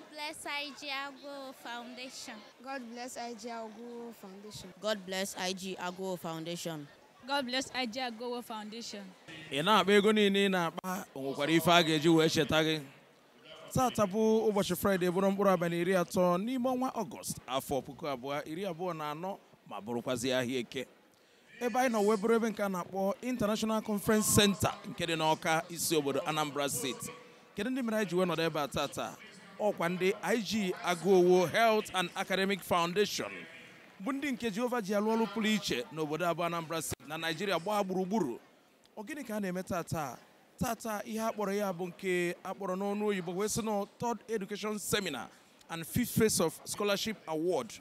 God bless IG Foundation. God bless IG Foundation. God bless IG Foundation. God bless Foundation. Ị na-akpa ego niile ị na-akpa nwekwara ife a ga-eji wee cheta gị. Taata bụ ụbọchị Fraịde bụrụ mkpụrụ abalị iri atọ n'ime ọnwa Ọgọst afọ puku abụọ iri abụọ na anọ ma bụrụkwazị ahịa eke. ebe anyị nọ wee ebe nke a na-akpọ International Conference Center nke dị n'Ọka isi obodo Anambra Steeti. Kedu ndị mere anyị ji wee nọdụ ebe a taata? ọkwa ndị IG Agụowo Health and Academic Foundation bụ ndị nke Jehova ji alụ ọrụ pụrụ iche n'obodo abụọ Anambra Steeti na Naijiria gbaa gburugburu ọ gịnị ka a na-eme tata tata ihe akpọrọ ya bụ nke akpọrọ n'ọnụ oyibo wee sị na Third Education Seminar and fit Phase of Scholarship Award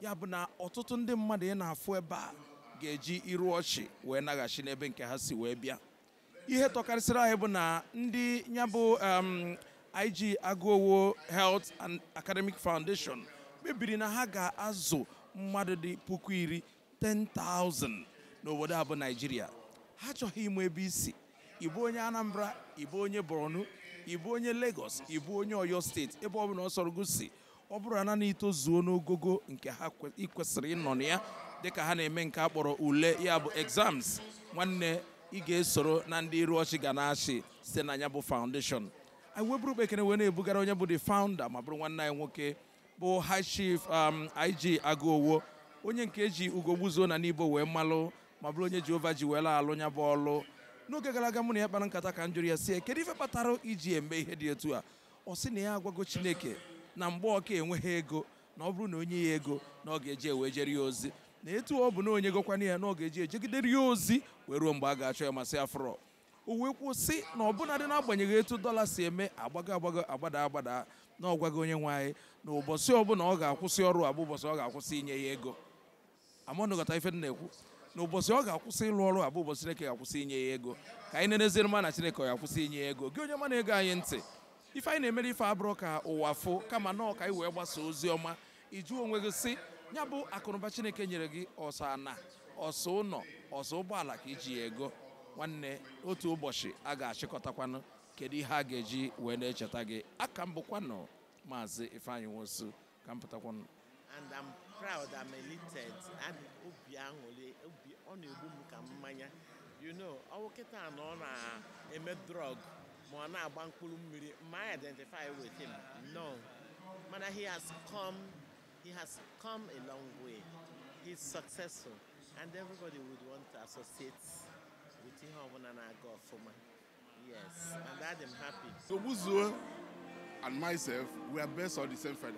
ya bụ na ọtụtụ ndị mmadụ ị na-afụ ebe a ga-eji iru ọchị wee naghachi n'ebe nke ha si wee bịa ihe tọkarịsịrị anyị bụ na ndị ya bụ um, IG Aguowo Health and Academic Foundation kpebiri na ha ga-azụ mmadụ dị puku iri 10,000 n'obodo abụ Naịjirịa ha chọghị ịmụ ebe isi ịbụ onye Anambra ịbụ onye Borno ịbụ onye Lagos ịbụ onye Oyo steeti ebe ọ bụla ọ sọrọ gosi ọ bụrụ na na itozuo n'ogogo nke ha kwesịrị ịnọ na ya dịka ha na-eme nke a kpọrọ ule ya bụ exams nwanne ị ga-esoro na ndị iru ọchị ga na-achị site na ya bụ foundation anyị weburu kpekere wee na-ebugara onye bụ the founder ma bụrụ nwanne anyị nwoke bụ high chief um, IG agụowo onye nke eji ugo gbuzuo na n'ibo wee mmalụ ma bụrụ onye Jehova ji wee alụ nya bụ ọlụ n'oge gara aga mụ na ya kpara nkata ka m ya si kedu ife kpatara iji eme ihe dị etu a ọ sị na ya agwago Chineke na mgbe ọka enweghị ego na ọ bụrụ na onye ya ego na ọ ga-eji ewe jere ya ozi na etu ọ oh, bụ na onye gokwana ya na ọ ga-eji ejegidere ya ozi wee ruo mgbe a ga-achọ ya masị afrọ Uwe kwuo sị na ọbụnadị n'agbanyeghị etu dọla si eme agbago agbago agbada agbada na gị onye nwe anyị na ụbọchị ọbụla ọ ga-akwụsị ọrụ abụ ụbọchị ọ ga-akwụsị inye ya ego amanụgọta ife dị na-ekwu na ụbọchị ọ ga-akwụsị ịlụ ọrụ abụ ụbọchị Chineke ga-akwụsị inye ya ego ka anyị na-eneziri na Chineke ọ ga-akwụsị inye ya ego gị onye mana ego anyị ntị ife anyị na-emere ife abụrụ ka ụwa fụ kama nọọ ka wee gbasa ozi ọma iju onwe gị si ya bụ akụnụba Chineke nyere gị ọsọ ana ọsọ ụlọ ọsọ ụgbọala ka iji ya ego nwanne otu ụbọchị a ga-achịkọtakwanụ kedu ihe a ga-eji wee na-echeta gị aka m bụkwanụ maazị ifeanyi nwosu ka m pụtakwanụ and I'm proud I'm elated and obi aṅụrị obi ọ na-egbu m ka mmanya you know ọwụ kịta na ọ na-eme drọg ma ọ na-agba mkpụrụ mmiri ma I identify with him no mana he has come he has come a long way he's successful and everybody would want to associate yes and that I'm happy so Buzuo and myself we are based on the same feather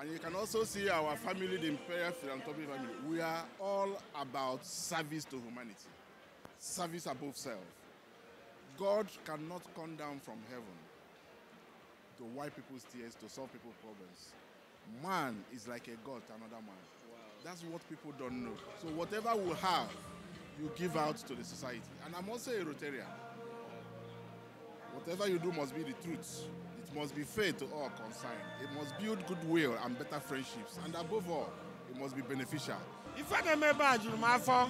and you can also see our family the imperial philanthropy family we are all about service to humanity service above self God cannot come down from heaven to wipe people's tears, to solve people's problems. Man is like a god to another man. Wow. That's what people don't know. So whatever we have, you give out to the society. And I'm also a Rotarian. Whatever you do must be the truth. It must be fair to all concerned. It must build goodwill and better friendships. And above all, it must be beneficial. If I remember Ajurumafo, oh,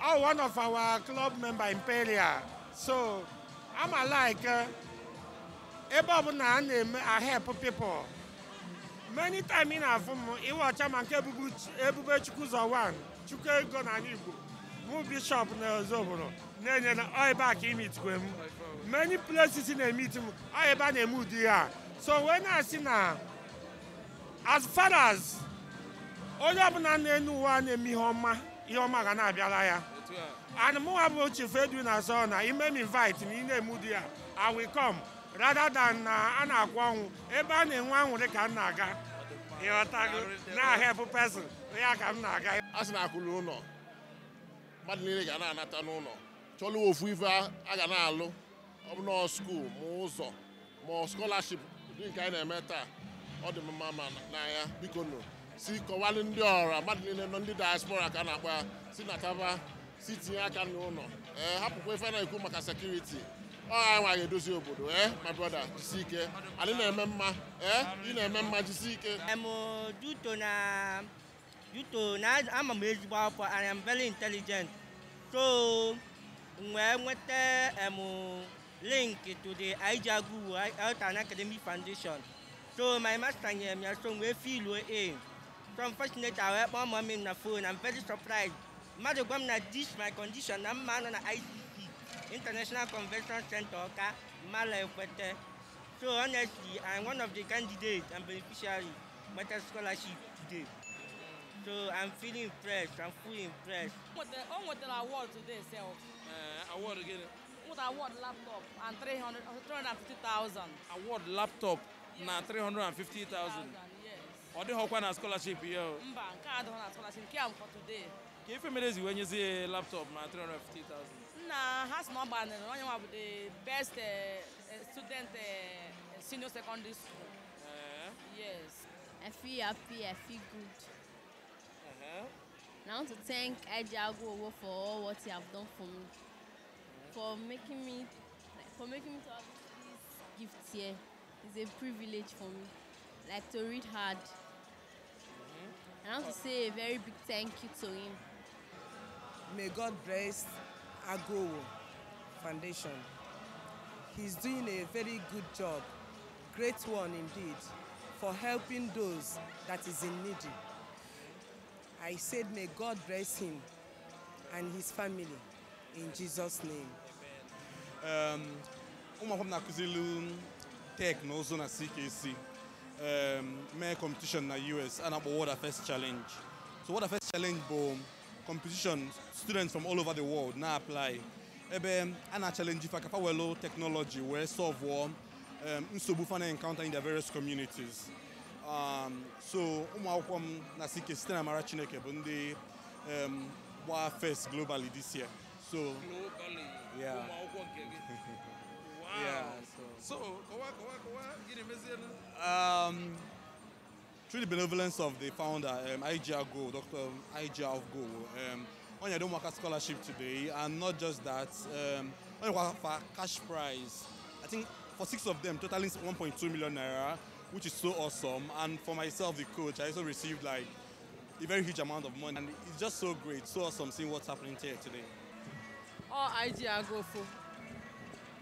I'm one of our club member Imperial. So I'm like, uh, I help people. Many times in our form, it was a man, Ebube Chukwuzawan, Chukwuzawan, Igbo. bụ bishọp na Ozubulu na-enyere ọ ebe a ka imitikwe m many places na-emiti m ọ ebe a na-eme ụdị ya so wee na-asị na as far as onye bụla na-enu uwe a na-eme ihe ọma ihe ọma ga na-abịara ya and mụnwa bụ chief Edwin Azor na ime m invite na ị na emu di ya I will come rather than na a na-akwụ ọnwụ ebe a na-enwe anwụrị ka m na-aga ịghọtago na help pesin ya ka m na-aga asị na akwụlụ ụlọ mmadụ niile ga na-anata n'ụlọ chọlụ ofu ife a ga na-alụ ọbụna skuul ma ụzọ ma skolaship ụdị nke anyị na-eme taa ọ dị mma ma n'anya biko nụ si kọwalụ ndị ọra mmadụ niile nọ ndị diaspora ka a na-akpa si na si tinye aka n'ụlọ ee hapụkwa ife na-ekwu maka sekuriti ọ anyị nwa ga-edozi obodo ee my brother jisi ike anyị na-eme mma ee ị na-eme mma jisi ike You to now I'm m ezigbo akwụkwọ I am very intelligent so wee nweta em link to the Ijeagwu Health and Academic Foundation so my master nyere m ya so feel filu a so unfortunately I my mom mọmi na phone I'm very surprised mmadụ gwa m na this my condition I'm man on the ICC International Convention Center Ọka Mala Ekwete so honestly I'm one of the candidates and beneficiaries a scholarship today So I'm feeling fresh. I'm fully impressed. What with oh, the award today, sir? Uh, award again. What award laptop and 300, 350,000. Award laptop yes. na 350,000. Yes. Ọ dịghị ọkwa na scholarship here? o. Mba, nke a adịghị na scholarship, nke a m for today. Ka ife mere eziwe nyezie laptop na 350,000. Nna ha sị na ọ gbanịrị onye the best uh, student uh, senior secondary school. Uh. Yes. I feel happy, I feel good. Yeah. I want to thank Ejiago for all what he have done for me, for making me, for making me to have this gift here. It's a privilege for me, like to read hard. Mm-hmm. And I want to say a very big thank you to him. May God bless Agowo Foundation. He's doing a very good job, great one indeed, for helping those that is in need. I said, may God bless him and his family in Jesus' name. Um, ụmụakwụkwọ m na-akụzili tek na CKC um, mee competition na US a na-akpọ Challenge. So what a first Challenge bụ competition students from all over the world na-apply ebe a challenge ife akapa welo technology wee solve nsogbu um na-encounter in their various communities. Um, so um, akwụkwọ m na CK site mara Chineke bụ ndị um, gbaa first globally this year so yeah. yeah, so, um, through the benevolence of the founder, um, IGR Go, Dr. IGR of Go, um, work a scholarship today, and not just that, um, for cash prize, I think for six of them, totaling 1.2 million naira, which is so awesome. And for myself, the coach, I also received like a very huge amount of money. And it's just so great, so awesome seeing what's happening here today. Oh, I agụ go for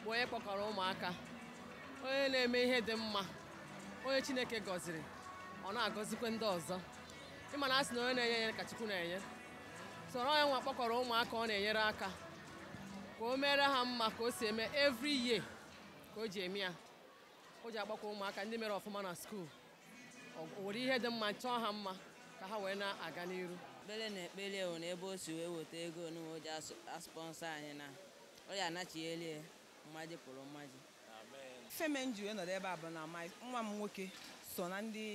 onye kpọkọrọ ụmụaka, onye na-eme ihe dị mma, onye Chineke gọziri, ọ na-agọzikwa ndị ọzọ. Ịma na asị na onye na-enye enye ka Chukwu na-enye. So onye nwa kpọkọrọ ụmụaka ọ na-enyere aka ka o mere ha mma ka o si every year ka o ji o ji agbakwa ụmụaka ndị mere ọfụma na skuul nwere ihe dị mma chọọ ha mma ka ha wee na-aga n'iru ekpere na ekpere wụ na ebe o si wee weta ego n'uwe ji aspọnsọ anyị na ọ ya anachigheli mmaji pụrụ mmaji feme ji wee ebe a bụ na nwa m nwoke so na ndị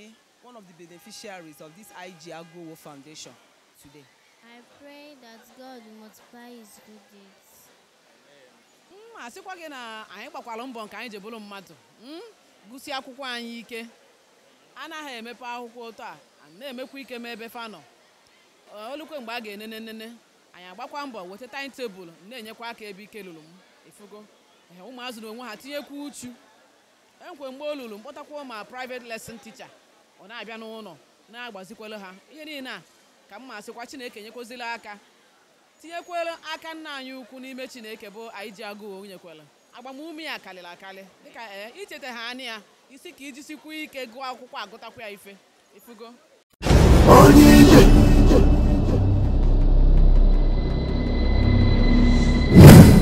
one of the beneficiaries of this IG Agowo Foundation today. I pray that God multiply his good deeds. ma sịkwa gị na anyị gbakwara mbọ nke anyị ji bụrụ mmadụ hmm? gụsi akwụkwọ anyị ike anaghị emepe akwụkwọ ụtọ a na-emekwa ike ma ebe fanọ olukwe mgbe a ga-enene nene anyị agbakwa mbọ weta taịntebụl na-enyekwa aka ebe ike lụrụ m efugo ụmụazụ na onwe ha tinyekwa uchu enkwe mgbe o lụrụ mkpọtakwa ma private lesin ticha ọ na-abịa n'ụlọ na-agbazikwelu ha ihe niile a ka m ma sịkwa Chineke enyekwazila aka tinyekwere aka nna anyị ukwu n'ime chineke bụ anyị ji agụụ onyenyekwere agbamume ya karịrị akarị dịka ee eh, icheta ha anya ya isi ka iji sikwu ike gụọ akwụkwọ agụtakwa ya ife ifugo